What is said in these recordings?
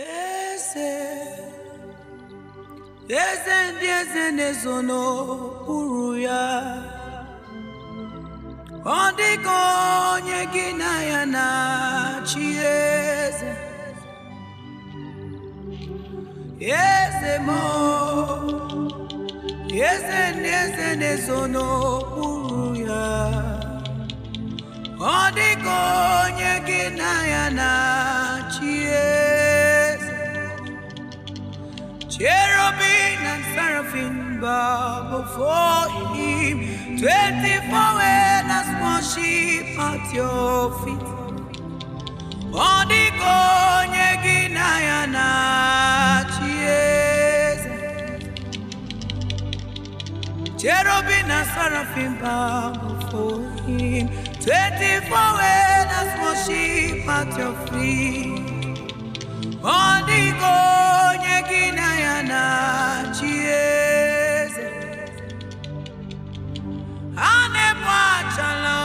eze eze ndị eze na-ezo n'okpuru ya ọ dịka onye gị na ya na chi eze eze m eze ndị eze na-ezo n'okpuru ya ọ dịka onye gị na ya na chi eze Cherubim and seraphim bow before him. Twenty-four elders worship at your feet. Ọ dịka onye gị na ya na-achị eze. Cherubim and seraphim bow before him. Twenty-four elders worship at your feet. ọ dịghị onye gị na ya na-achị eze a na-egbu achala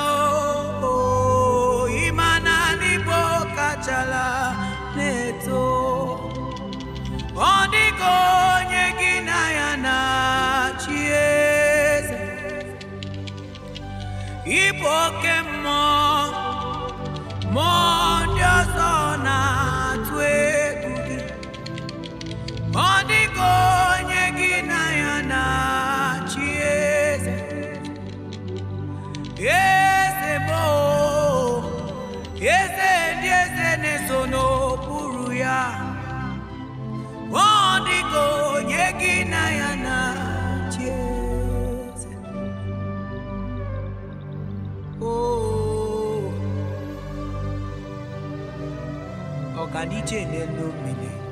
ma na ndị Igbo kachala na-eto ọ dịghị onye gị na ya na-achị eze Igbo oke mmụọ mmụọ ọ ga n'ije n'elu mmiri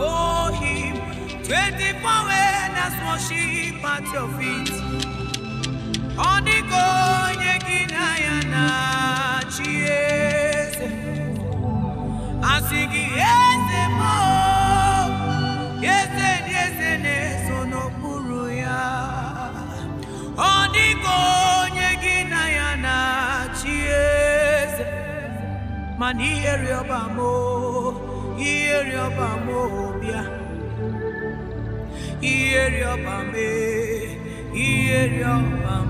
for him. 24 elders worship at your feet. onye gị na ya na chi eze. Asị gị eze eze dị eze na-eso n'okpuru ya. Ọdịgo onye gị na ya na eze. Mana ihere rịọba m bịa ihe rịọba ihe rịọba m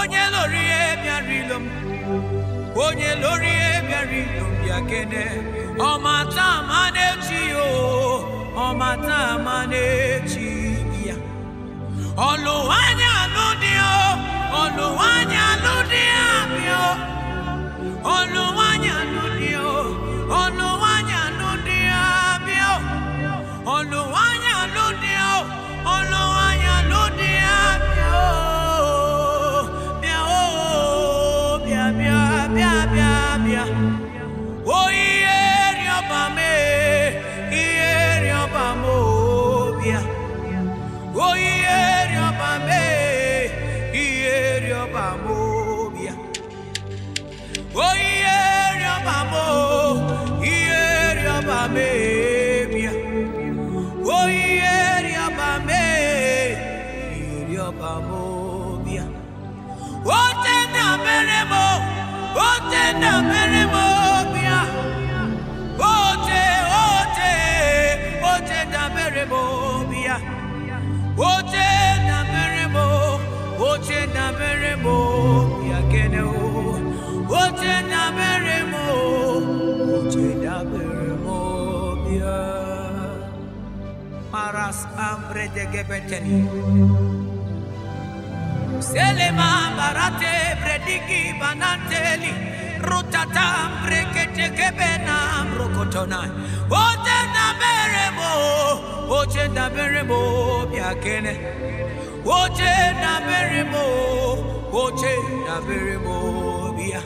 onye lórí ẹ̀mí àrílò onye lórí ẹ̀mí àrílò bịa kene ọma taa ma na-echi o ọma taa ma na-echi ya ọlụwanya dị o ọlụwanya alụdị abịa ọlụwanya alụdị Hallelujah. Mas ambre de gebeteni. Selema barate prediki bananteli. Rutata brekete gebena mrokotona. Ote na berebo, ote na berebo biakene. Ote na berebo, ote na berebo bia.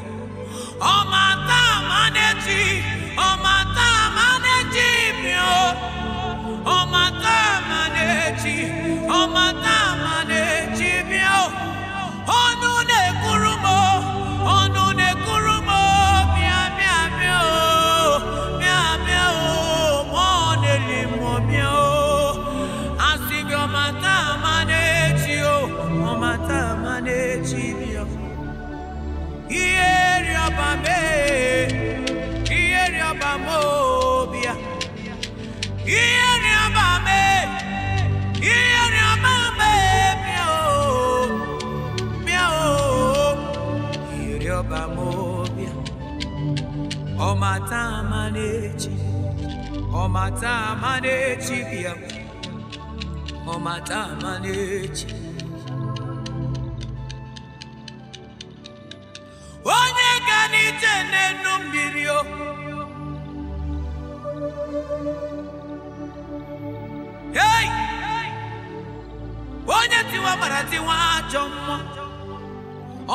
Omata maneji, omata maneji mio. ịdọba m obi ọmata ama n'echi ọmata ama n'echi bịa ọmata ama n'echi onye ga n'ije n'enu mmiri o hey! onye tiwa mara tiwa ajọ mmụọ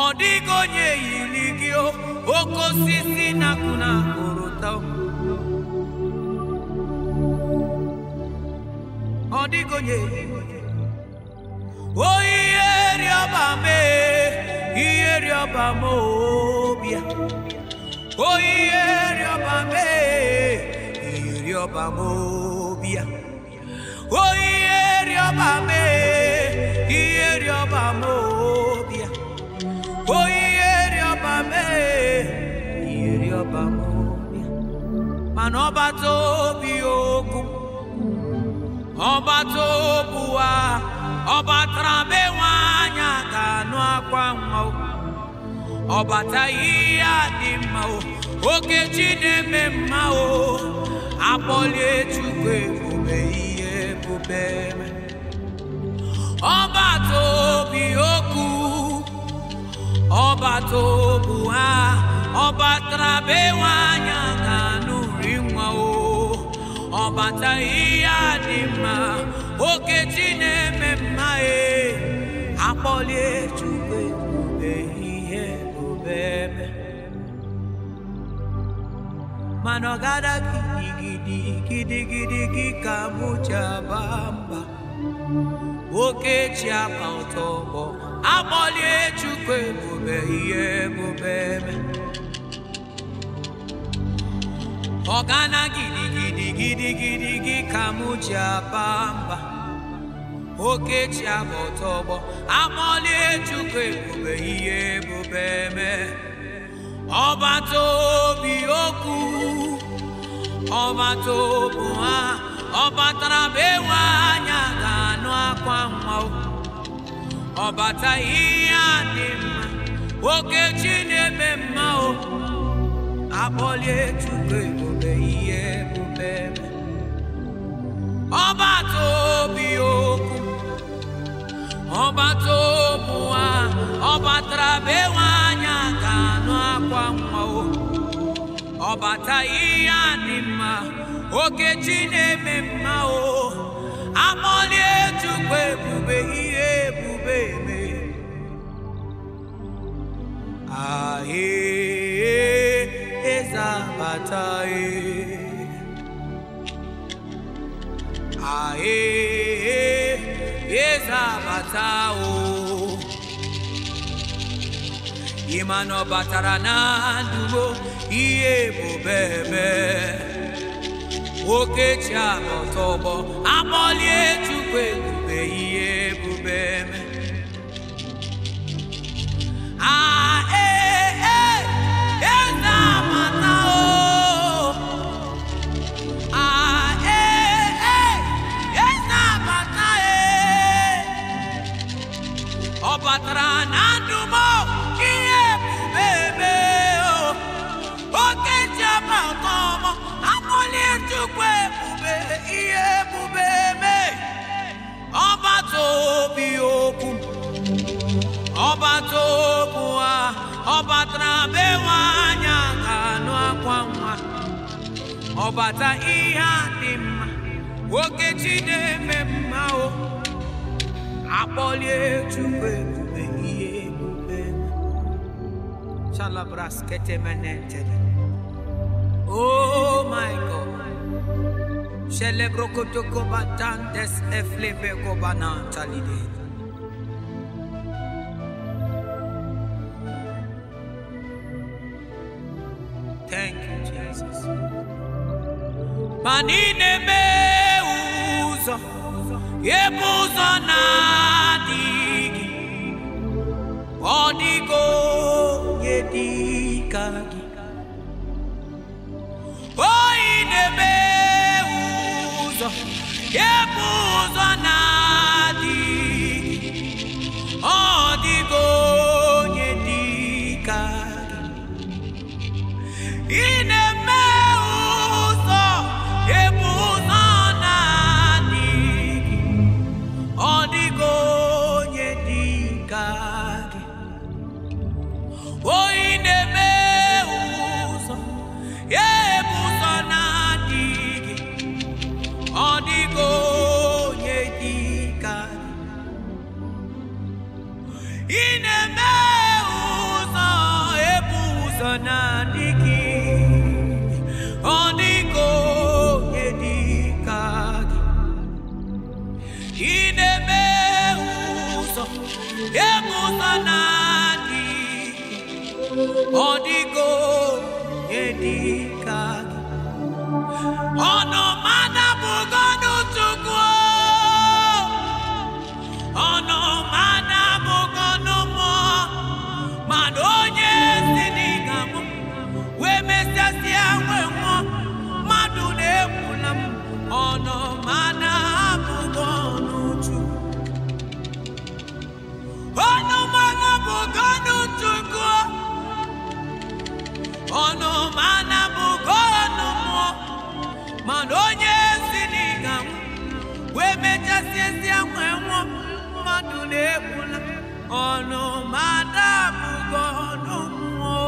ọ dịghị onye yiri gị oke osisi nakụna orota ọ dịghị onye o rịọba mee ihe rịọba rịọba mee ihe rịọba m obia rịọba mee ihe rịọba mana ọbata obi okwu ọbata obu a ọbatara be anya ga-anụ akwa nwa ọbata ihe a dị mma oke chi na-eme mma o akpọlie chukwu ebube ihe ebube ọbata obi okwu ọbata obu obuwa ọbatara be nwaanyị ga ọbata ihe adị mma oke chi na-eme mma ee akpọlie chukwu ebube ihe obebe mana ọ gada gidigidi gidigidi gị ka mụ mba oke chi aba ụtọ ọgbọ akpọlie chukwu ebube ihe ebube ebe ọgana gidigidi gị ka m ji aba mba okechi aba ọtọ ọgbọ amọlie chukwu ebube ihe ebube eme ọbata obi okwu ọbata obu ha ọbata batara anya ga-anụ akwa nwa ọ Ọbata ihe adị mma oke Chineke akpọlie Chukwu ebube ihe ebube ọbata obi okwu ọbata obu ha ọ batara anya ka anụ akwa nwa ọ bata ihe a dị mma oke chi na-eme mma o akpọlie Chukwu ebube ihe ebube eme ahee apataye ae ezabata o ịma na ọ batara na ndụgbo ihe bụ bebe a anọta ọgbọ akpọlie chukwu ebube ihe ebube eme pụtara na ndụmọ ihe bubebe oke jiaba ọtọmọ akpọlie Chukwu ebube ihe ebube me ọbata obi okwu ọbata okwu ha ọbata batara bewe anya ga-anụ akwa nwa ọbata ihe a dị mma nwoke chi na-eme mma o akpọlie Chukwu Oh my God. Celebro kotoko batantes eflepe kobana talide. Thank you, Jesus. Manine meuzo, yebuzo na egbusa na-adị ọ dịgo ọnụ mana bụgo ọnụ mmụọ mana onye ezi n'ịga wee mechasịa ezi ahụ enwụọ mmadụ na-egbula ọnụ mana bụgo ọnụ mmụọ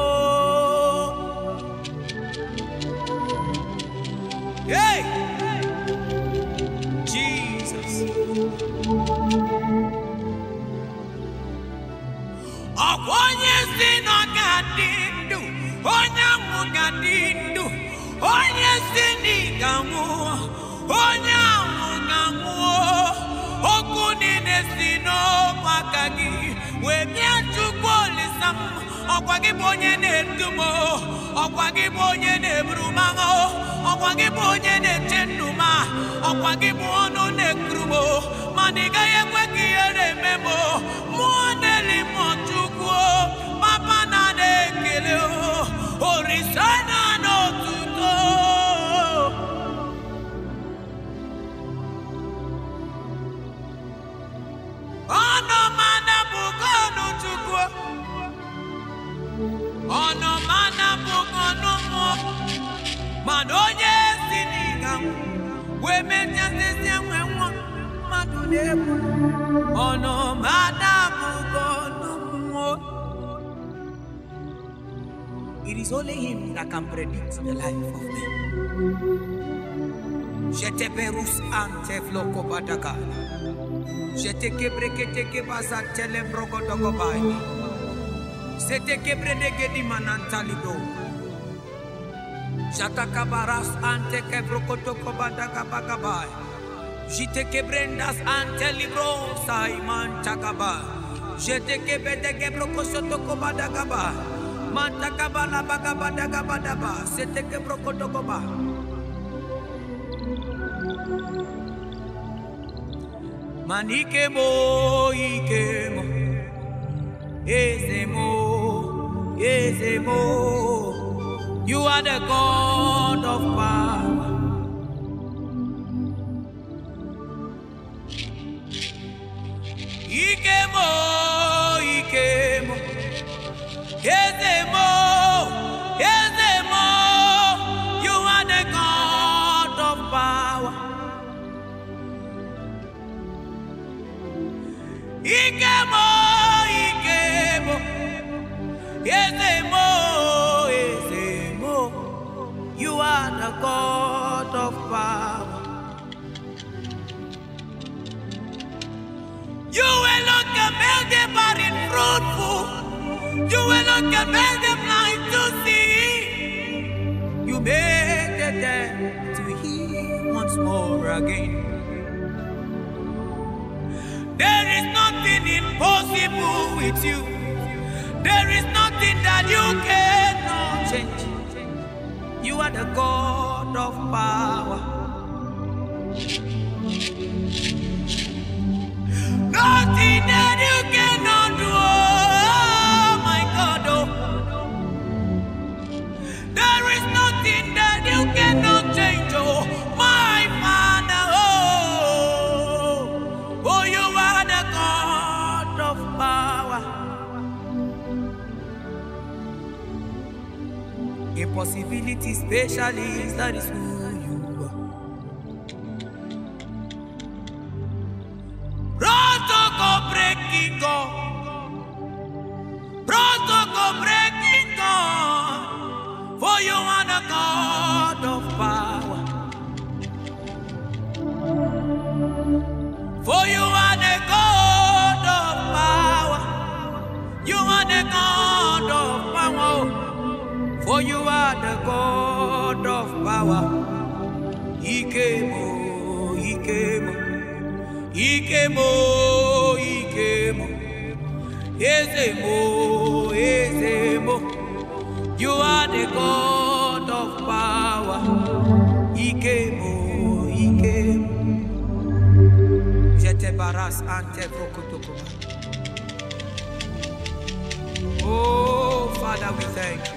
Hey! Jesus! ọkwa onye ezi nọ onye si n'ịga nwụọ onye ahụ na anwụọ okwu niile si n'ọkwa aka gị wee bịa chukwu olisa m ọkwa gị bụ onye na-edu m ọkwa gị bụ onye na-eburu m agha ọkwa gị bụ onye na-eche ndụ ọkwa gị bụ ọnụ na-ekuru m mana ị gaghị ekwe ka ihe na-eme mụọ na-eli m chukwu papa na ekele orisa mana onye si n'ịga wee mechasịsị enwe nwa mmadụ na-egbu ọnụ ma adabụgo n'ụmụnwo It is only him that can predict the life of men. Jeteberus ante floko badaka. Jeteke breketeke bazantele brogodogobai. Seteke bredege di manantalido. Jatakabaras ante kebrokotoko bandagabagai. Jitekebendas ante libro saiman takaba. Jetekebete kebrokosotoko ike mo eze mo Manikemo ikemo. Ezemo, ezemo. You are the God of power. You were not can make them blind to see. You made the dead to hear once more again. There is nothing impossible with you. There is nothing that you cannot change. You are the God of power. Nothing that you can Impossibility specialist, that is who ike mo ike mo eze mo eze mo you are the god of power ike mo ike mo jete baras ante brokotokoma oh father we thank you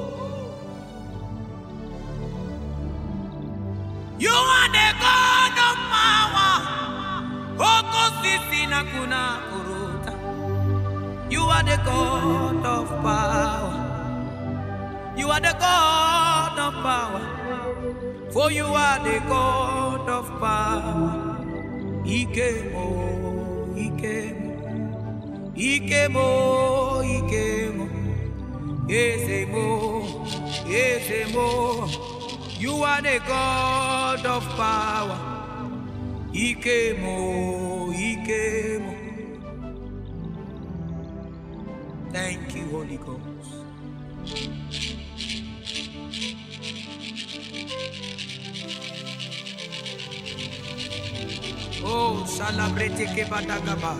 You are the God of power. You are the God of power. You are the God of power. For you are the God of power. Ikemo, Ikemo, Ikemo, Ikemo. Yes, Ikemo, yes, You are the God of power. Ikemo, Ikemo. Thank you, Holy Ghost. Oh, celebrate Kebadagaba.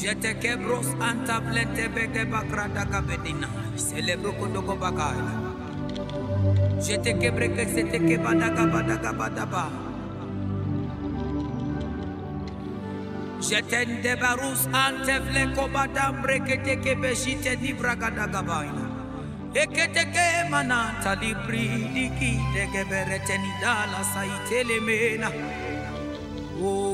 Je te quebros antablete bede bakrada kabedina. Celebro kondoko bakala. Je te quebre que se te kebada kabada kabada ba. Je te debarus antevle kobada brekete kebeshite di bragada kabaina. Ekete ke manata libri diki de kebereteni dala sa saitelemena. Oh.